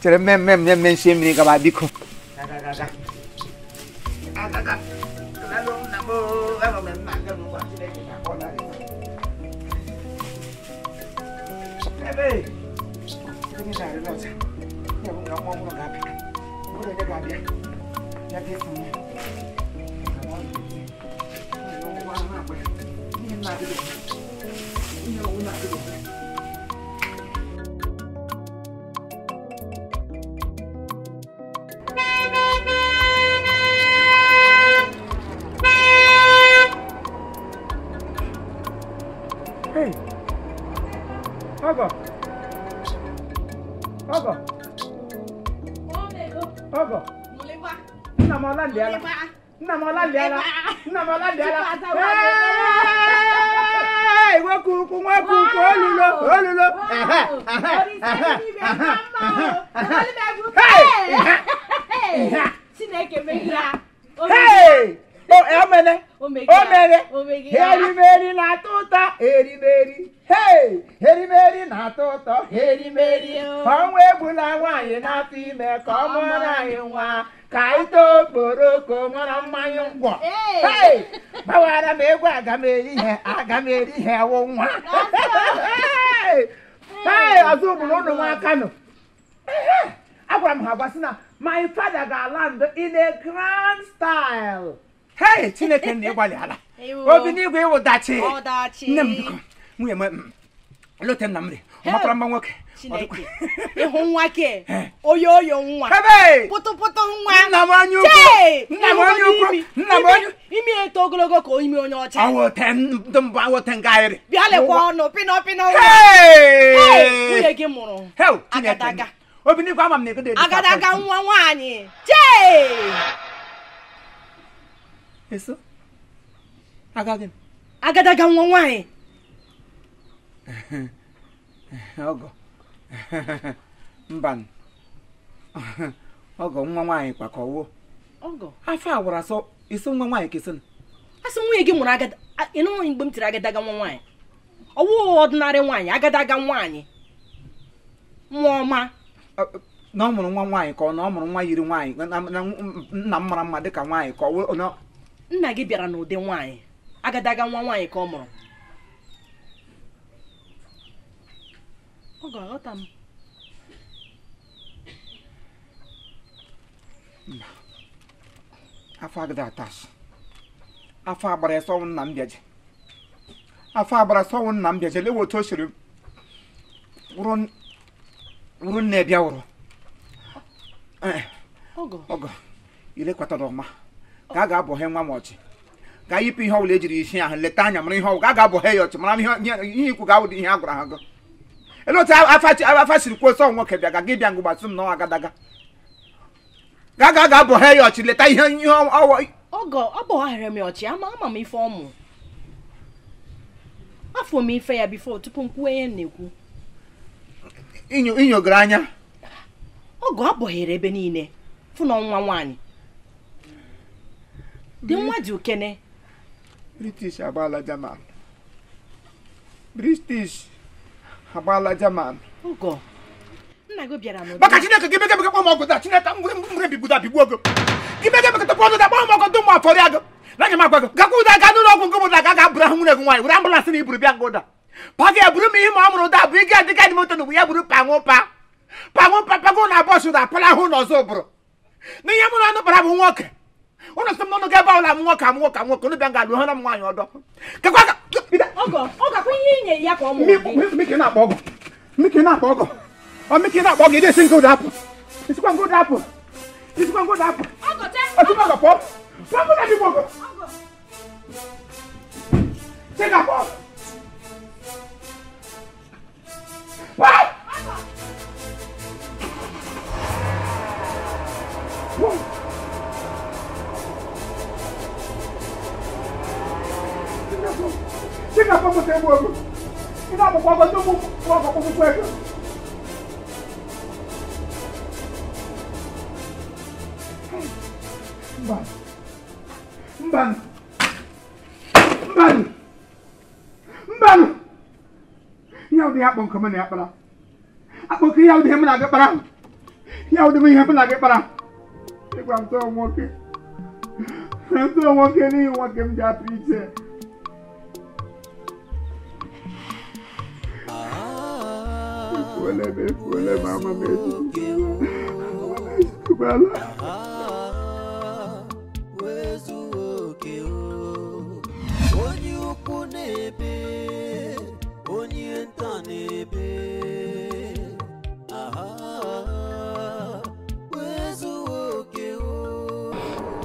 kyerɛ mmɛmmɛm ne mmɛ nsuo mmiri kaba bi ko Thank you. ọlálẹ̀ ara nna m ọlálẹ̀ ara nna m ọlálẹ̀ ara ìwé kùkù wọn kùkù olùlọ olùlọ. Chineke megide ya omene eh, omere erimeri na-atọ tota. ụtọ erimeri hey, erimeri na-atọ ụtọ erimeri ọnwa egbula nwaanyị na-atụ ime ka ọ mụrụ anyị nwa ka anyị too okporoko mara mmanya ngwọ hey, gbawara m egwu aga m eri ihe aga m eri ihe wụ nwa hey, ọzọ ụmụrụ ụnụ nwa kano agwara m ha gwa sị na my father ga-ala ndo in a grand style hei chineke na ịgbalị obi n'igwe ịwụ dachi nne m biko nwunye m lote m na ọmakwara mma nwoke ịhụ nwa ke oyo oyo nwa pụtụpụtụ nwa nna m anya ukwu nna m anya ukwu nna m anya imi eto ogologo ka imi onye ọcha awote ndụ mbụ awote nga ahịrị bịa lekwa ọnụ pịnọ pịnọ nwunye gị mụrụ agadaga obi n'igwe ama m na ego dị agadaga nwa nwaanyị jee eso agaghị agadaga nwa nwaanyị ọgọ mba ọgọ nwa nwaanyị kwakọwo afọ agwara sọ iso nwa nwaanyị kesị asị nwunye gị mụrụ agada ịnụrụ mgbe m tiri agadaga nwa nwaanyị ọwụ ọdịnarị nwaanyị agadaga nwaanyị nwa ọma na ọ mụrụ nwa nwaanyị ka ọ na ọ mụrụ nwa yiri nwaanyị na nna m mara mma dị ka nwaanyị ka ọ nna gị bịara n'ụdị nwaanyị agadaga nwa nwaanyị ka ọ mụrụ ọ ga-aghọta m mba afọ agada atas afọ agbara sọnwụ nna m bịaje afọ agbara sọnwụ nna m bịaje lewe otu o siri wụrụ nne bịa wụrụ ọgọ ilekwatara ọma ka a ga-abọhe nwa m ọchị ka yipụ ihe ọbụla ejiri isi ahụ leta anya mara ihe ọgwụ a ga-abọhe ya ọchị mara ihe ikwu ga-awụdị ihe a gwara ha gụ ele otu afa siri kwuo sọ nwoke bịa ga gị bịa ngụgbatụ m n'ọnwa agadaga ga ga ga abọhe ya ọchị leta ihe ihe ọwọ ọgọ ọ bọgharịrị m ọchị ama ama m ife ọmụ afọ m ife ya bifo tupu m kwuo ihe na-ekwu inyogoro anya ọgọ abọghere ebe niile fụ na ọnwa nwaanyị dị nwa dị okene british agbaala british agbaala jaman nna gị bịara n'ụdị maka chineke gị bega bega kpọọ ọgụ taa chineke mgbe bigbuda bigbuo gị gị bega bega tọpụ ọdụda kpọọ m ọgụ dụ afọrịa gị na m agwa gị gakwa ụda gaa n'ụlọ ọgwụ nke ụda ga bụrụ nwunye gị nwaanyị were na iburu bịa ụda eburu m ihe ma ọ mụrụ ụda bụ ya buru panwụ pa panwụ pa pago na apara bụrụ mụrụ anụ bara bụ nwoke wọn sọ mọnú kẹ báwo la kà mú kà mú wọn ní bẹ lu hàn mú àyàn ọdọ kẹkọọ ọgọ ọgọ kò yí ìyẹn ìyá kọ ọmọ mi. mi kì ọgọ mi kì í ọgọ ọ mi kì í ọgọ ìdí èsì dàpọ èsì kò dàpọ èsì kò dàpọ. ọgọ tẹ ọgọ ọgọ pọ pọ kó dàbí pọ ọgọ. ṣé kà pọ. kita mau egbu ogo ị papa akpọkwa ọgọdị aku, ọkpụkpụ ego mbanụ mbanụ mbanụ Mbak, ụdị akpọ nke ya na-akpara akpọ nke ihe ụdị ihe m na-abịa udah ihe ụdị m ihe m na-abịa mau ịgwa m tọọ nwoke tọọ nwoke n'ihi nwoke m Fuele, me fuele, mama, me Kumala. Onye ukwu na-ebe, onye nta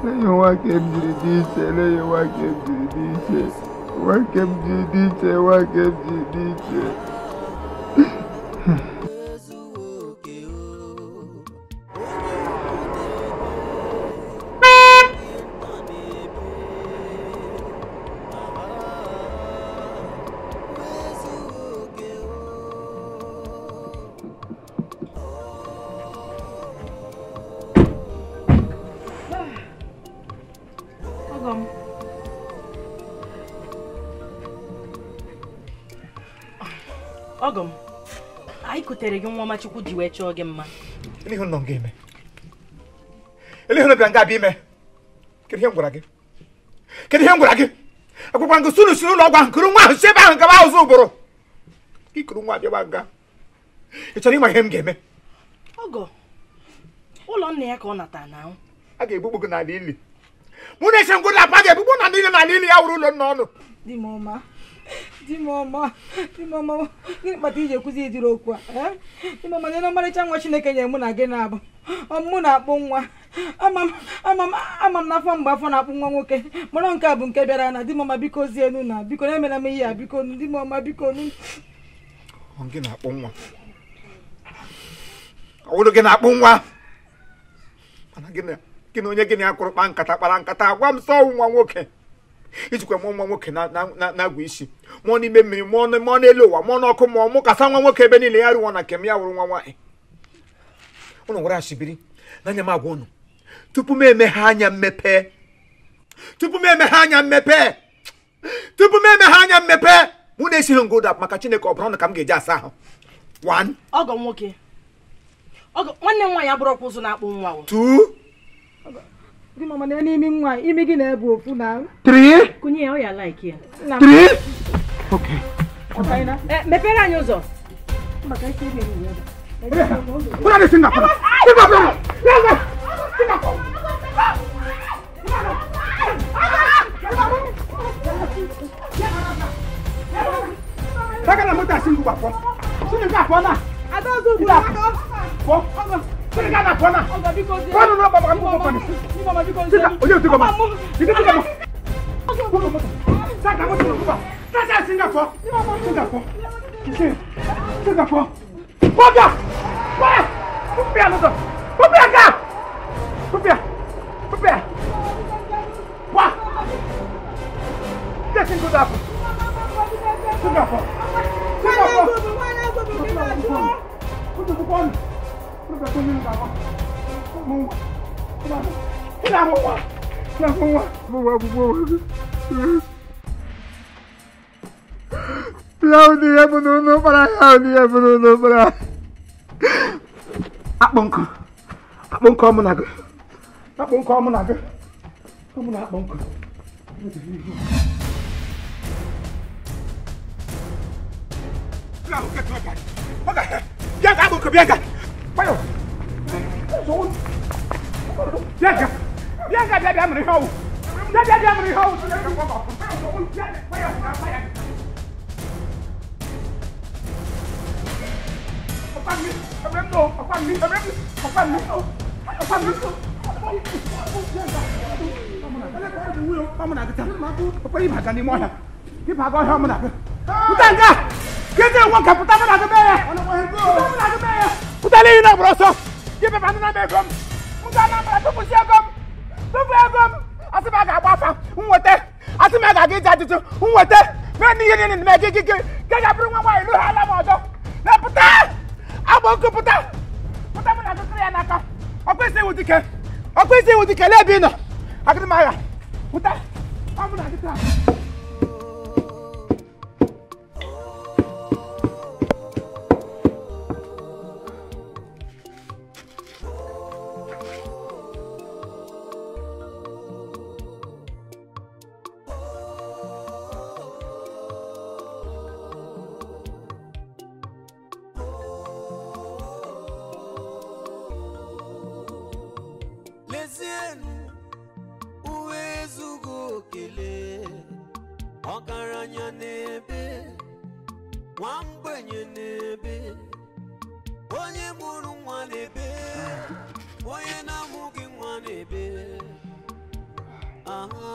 Lẹ́yìn wá kẹ́mdìrì ní ìṣe, lẹ́yìn wá kẹ́mdìrì ní ìṣe, wá kẹ́mdìrì ní ìṣe, wá kẹ́mdìrì ní ìṣe. Ogum. kutere gị nwa ọmachukwu ji wee chọọ gị mma ihe nọ nga eme eleihe nọbịa nga abịa ime kedu ihe m gwara gị kedu ihe m gwara gị agwakwa gị sunu sunu ụlọ ọgwụ nkuru nwa ahụ si ebe ahụ gaba ahụ ụbụrụ ikuru nwa abịaba nga ị chọrọ ịma ihe m ga-eme ọgọ ụlọ nna ya ka ọ nata na a ga-egbugbu gị n'ala ili mụ na-eche ngwụ na apa ga-egbugbu na ndị n'ala ili ya wuru ụlọ nna ọnụ dị di m ọma dimọma dimọma gịnị kpata iji ekwuzi ịdịrị okwu a di dimọma nye na ọmarịcha nwa chineke nyere mụ na gị na-abụ ọmụmụ na-akpụ nwa ama m n'afọ mgbe afọ na-akpụ nwa nwoke mara nke a bụ nke bịara na di m ọma biko zienu na biko na-emela m ihe a biko dimọma biko nu gị na-akpụ nwa ọwụrụ gị na-akpụ nwa mana gị na onye gị na ya kụrụ kpa nkata kpara nkata gwa m sọ nwa nwoke ijikwa mụọ nwa nwoke na-agwa isi mụọ n'ime mmiri mụọ n'elu ụwa mụọ n'ọkụ mụọ mụ kasa nwa nwoke ebe niile ya rụwa na nke m ya wụrụ nwa nwaanyị ụnụ nwere ashibiri n'anya m agwa ụnụ tupu m emeghe anya mmepe tupu m emeghe anya mmepe tupu m emeghe anya mmepe mụ na-esighị ngụda maka chineke ọ bụrụ na ka m ga-eji asa ahụ ọgọ nwoke nwanne m nwaanyị abụrụ ọkwa ụzọ na-akpụ nwa Di mama na n'imi nwa, imi gị na-ebu ofu na. Three. Kunye oh, ya, ọ like ya. Eh, mepere anyị ụzọ. Kuna dị Singapore. Singapore. Singapore. Saka na mota Singapore. na. Ada ozu ugbu a. Pọ. Sini ka na kɔna. Kɔnu n'o baba n b'o kɔni. Sisan o y'o ti kɔma. I ti ti kɔma. Sisan ka bɔ tubabu kan. Sisan sin ka fɔ. Sin ka fɔ. Sin sin ka fɔ. Kɔbia kɔbia kɔbia n'o tɛ kɔbia ka kɔbia kɔbia wa. Sisan sin ko t'a fɔ. Sin ka fɔ. Sin ka fɔ. Kɔbia kɔbia kɔbia kɔbia kɔbia kɔbia kɔbia kɔbia kɔbia kɔbia bẹ tó nínú bàbá mo wà tó bá mi kí ni àwọn wà kí ni àwọn wà mo wà gbogbo wọn. Yau ni ya bunu nu para yau ni ya bunu nu para. Akpọ nkọ akpọ nkọ mụ na gị akpọ nkọ mụ na gị mụ na akpọ nkọ. Bịa ka akpọ nkọ bịa ka. bây giờ, Rồi Bianca Bianca dia dia menihau Dia dia dia menihau Apaan ni? Apaan ni? Apaan ni? Apaan ni? Apaan ni? Apaan ni? Kamu nak kita? Apa ini bahagian di mana? Ini bahagian kamu nak? Bukan kah? Kita uang kaputan nak ke mana? Kita nak ke mana? Mali ina broso. Ki pe panuna me gom. Muta na mra to kusi gom. To fe gom. Asi ba ga gbafa. Nwote. Asi me ga gi jatutu. Nwote. Me ni yini ni me gi gi gi. Ke ga bru nwa ilu hala mo do. Na puta. Abo ku puta. Puta mu na ku kriya na ka. Okwese wudike. Okwese wudike lebi no. Akidi maya. Puta. Amu na ki ta. mezienụ uwe ezughị okele ọgaranya n'ebe nwa mgbenye n'ebe onye mụrụ nwa n'ebe onye na-amụghị nwa n'ebe aha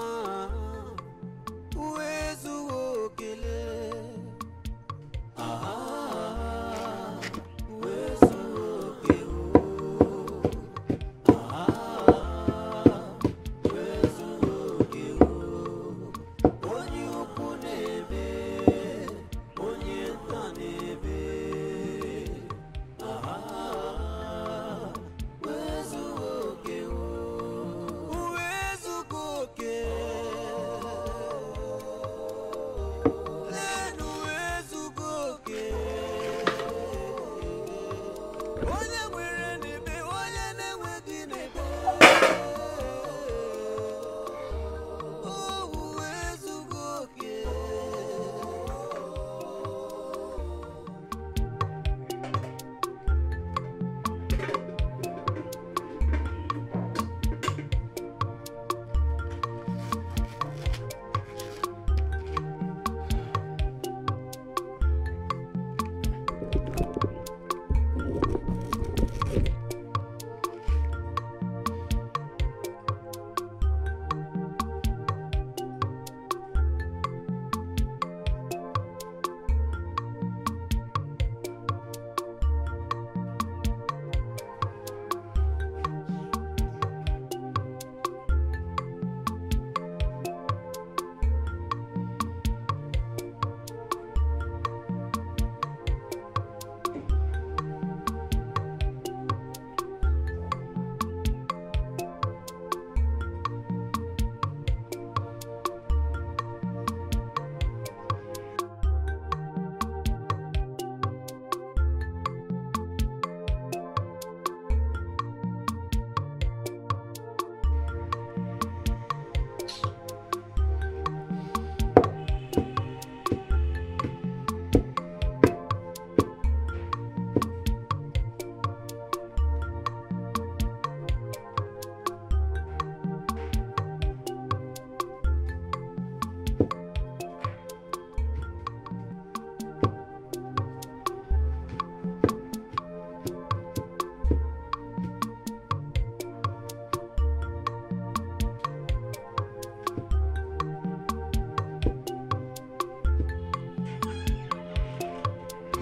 uwe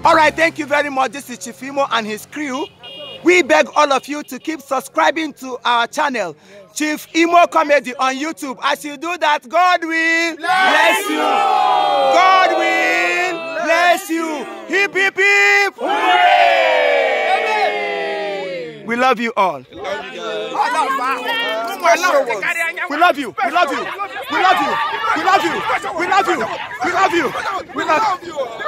All right, thank you very much. This is Chifimo and his crew. We beg all of you to keep subscribing to our channel, Chief Imo Comedy on YouTube. As you do that, God will bless, you. God will bless, you. Hip, hip, hip. Hooray! We love you all. We love you. We love you. We love you. We love you. We love you. We love you. We love you. We love you.